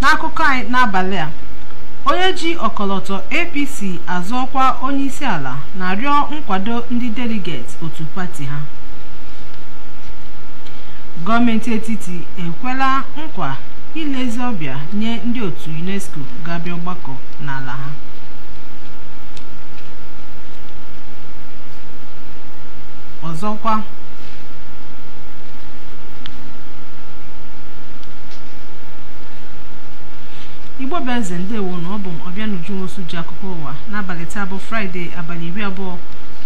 n'akụkọ anyị n'abalị a onye ji ọkọlọtọ apc azụọkwa onye onyeisi ala na-arịọ nkwado ndị deligeti otu pati ha gọọmenti etiti ekwela nkwa ilezi ọbịa nye ndị otu unesco ga-abịa ọgbakọ n'ala ha ọzọkwa igbo beze ndewo na ọ bụ ọbịa nwosu ji akụkọ ụwa n'abalị taa bụ fraịde abalị iri abụọ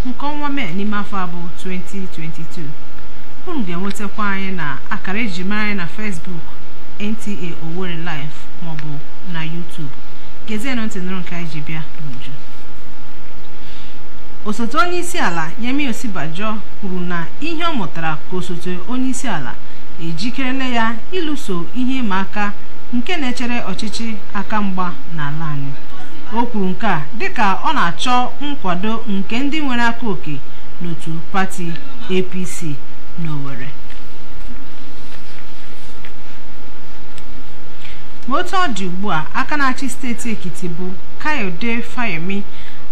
nke ọnwa mee n'ime afọ abụọ 2022 unu ga-enwetakwa anyị na akara eji mara anyị na fesbuk nta owerri live maọbụ na youtube gezienụ ntị nụrụ nke anyị ji bịa n'uju osote onye isi ala yemi osibajo kwuru na ihe ọ mụtara ka osote onye isi ala ejikerela ya ịlụso ihe ịma aka nke na-echere ọchịchị aka mgba n'ala anyị o kwuru nke a dịka ọ na-achọ nkwado nke ndị nwere aka oke n'otu pati apc n'owerri otu ọ dị ugbu a aka na-achị steeti Ekiti bụ Kayode Fayemi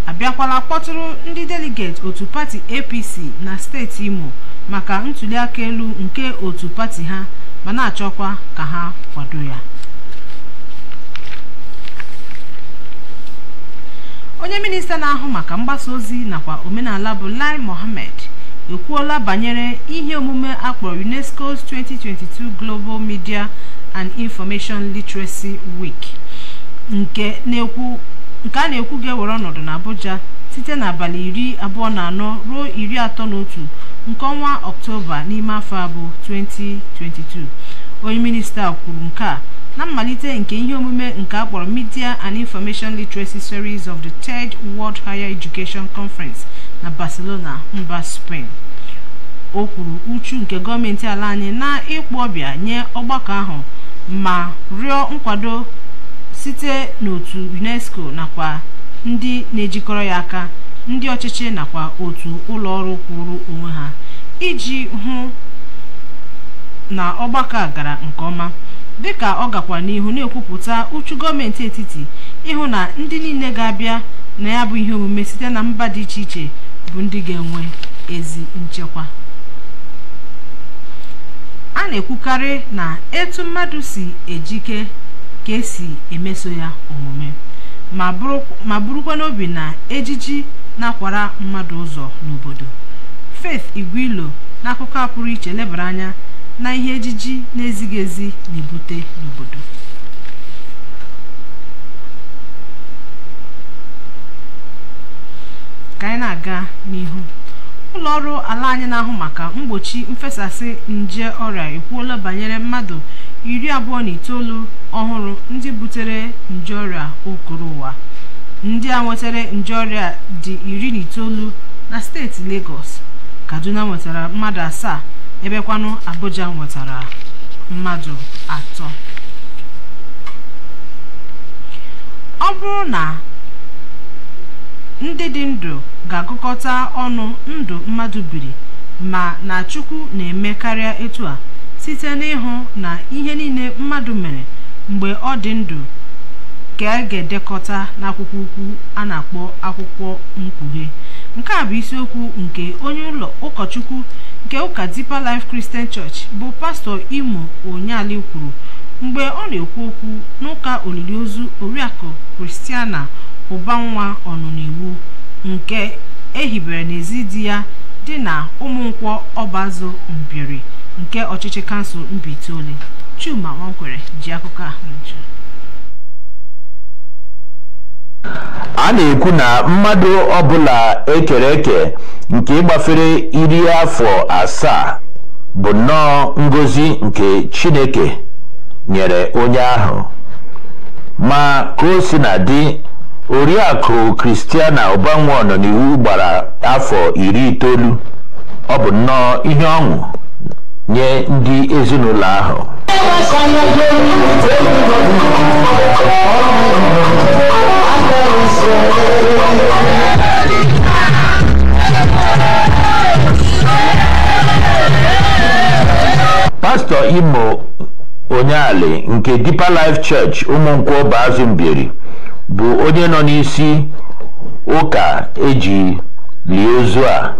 abịakwala kpọtụrụ ndị deligeti otu pati APC na steeti Imo maka ntuliaka elu nke otu pati ha ma na-achọkwa ka ha kwado ya onye minista na-ahụ maka mgbasa ozi nakwa omenala bụ Lai Mohammed ekwuola banyere ihe omume akpọrọ UNESCO's 2022 Global Media and Information Literacy Week nke a na-ekwu ga-ewere ọnọdụ na Abuja site n'abalị iri abụọ na anọ ruo iri atọ na otu nke ọnwa Ọktoba n'ime afọ abụ 2022 onye minista kwuru nke a na mmalite nke ihe omume nke akpọrọ Media and Information Literacy Series of the Third World Higher Education Conference na Barcelona mba Spain o kwuru uchu nke gọọmenti ala anyị na ịkpọ ọbịa nye ọgbakọ ahụ ma rịọ nkwado site n'otu unesco nakwa ndị na-ejikọrọ ya aka ndị ọchịchị nakwa otu ụlọ ọrụ kwụrụ onwe ha iji hụ na ọgbakọ a gara nke ọma dịka ọ gakwa n'ihu na-ekwupụta uchu gọọmenti etiti ịhụ na ndị niile ga-abịa na ya bụ ihe omume site na mba dị iche iche bụ ndị ga-enwe ezi nchekwa a na-ekwukarị na etu mmadụ si ejike ka esi emeso ya omume ma bụrụkwa n'obi na ejiji na-akwara mmadụ ụzọ n'obodo Faith Igwilo n'akụkọ a pụrụ iche lebara anya na ihe ejiji na-ezighị ezi na-ebute n'obodo ka anyị na-aga n'ihu ụlọọrụ ala anyị na-ahụ maka mgbochi mfesasị nje ọrịa ekwuola banyere mmadụ iri abụọ na itoolu ọhụrụ ndị butere nje ọrịa okoro ụwa ndị a nwetara nje ọrịa dị iri na itoolu na steeti Lagos Kaduna nwetara mmadụ asaa ebekwanụ Abuja nwetara mmadụ atọ ọ bụrụ na ndị dị ndụ ga-agụkọta ọnụ ndụ mmadụ biri ma na Chukwu na-eme karịa etu a site n'ịhụ na ihe niile mmadụ mere mgbe ọ dị ndụ ka a ga-edekọta n'akwụkwọ ukwu a na-akpọ akwụkwọ mkpughe nke a bụ isiokwu nke onye ụlọ ụkọchukwu nke ụka Deeper Life Christian Church bụ pastọ Imo Onyeali kwuru mgbe ọ na-ekwu okwu n'ụka olili ozu Oriakụ Kristiana ụba nwa ọnụniwu nke ehibere n'ezi di ya dị na ụmụnkwọ ọbazụ mbiri nke ọchịchị kansụl Mbaitoli Chuma Nwankwere ji akụkọ ahụ a na-ekwu na mmadụ ọbụla ekere eke nke ịgbafere iri afọ asaa bụ nnọọ ngozi nke Chineke nyere onye ahụ ma ka o si na dị Oriakụ Christiana Ụbanwe n'iwu gbara afọ iri itoolu ọ bụ nnọọ ihe ọṅụ nye ndị ezinụlọ ahụ pastọ Imo Onyeali nke Deeper Life Church Ụmụnkwọ Bazụ mbiri. bụ onye nọ n'isi ụka eji lie ozu a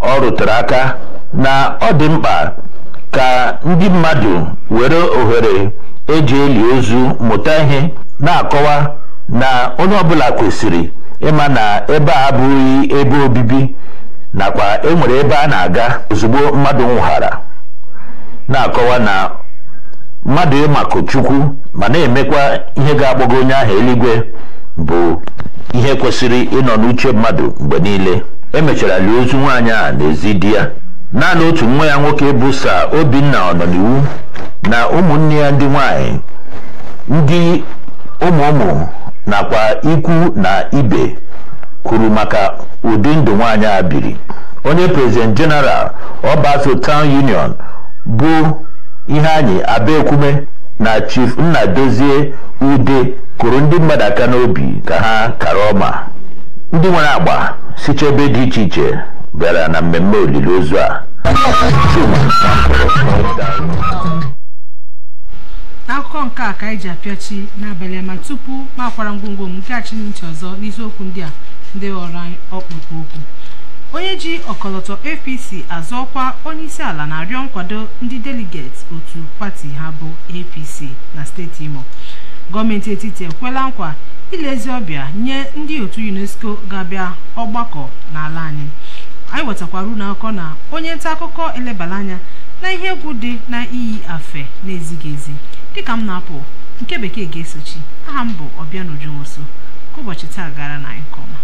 ọ rụtere aka na ọ dị mkpa ka ndị mmadụ were ohere eji eli ozu mụta ihe na-akọwa na onye ọbụla kwesịrị ịma na ebe a abụghị ebe obibi nakwa enwere ebe a na-aga ozugbo mmadụ nwụghara na-akọwa na mmadụ ịmakụ chukwu ma na-emekwa ihe ga-agbago onye ahụ eluigwe bụ ihe kwesịrị ịnọ n'uche mmadụ mgbe niile emechara lie ozu nwaanyị a n'ezi di ya naanị otu nwa ya nwoke bụ sa obinna ọnọniwu na ụmụnne ya ndị nwanyị ndị ụmụ ụmụ nakwa ikwu na ibe kwuru maka ụdị ndụ nwaanyị a biri onye prezident jeneral ọba Town Union bụ ihe anyị abaekwume na chief nnadozie ude kụrụ ndị mmadụ aka n'obi ka ha kara ọma ndị nwere agba siche ebe dị iche iche bịara na mmemme olili ozu a akụkọ nke a ka anyị ji apịachi n'abalị ama tupu makwara ngwongwo m nke achị ọzọ n'isiokwu ndị a ndị ghọrọ anyị ọkpụkpụ okwu onye ji ọkọlọtọ apc azọ ọkwa ala na-arịọ nkwado ndị deligeti otu pati ha bụ apc na steeti imo gọọmenti etiti ekwela nkwa ilezi ọbịa nye ndị otu unesco ga-abịa ọgbakọ n'ala anyị anyị wetakwara unu na onye nta akụkọ elebara anya na ihe egwu dị na iyi afe na-ezighị ezi dịka m na-apụ nke bekee ga-esochi aha m bụ ọbịa n'uju ka ụbọchị taa gara na ọma.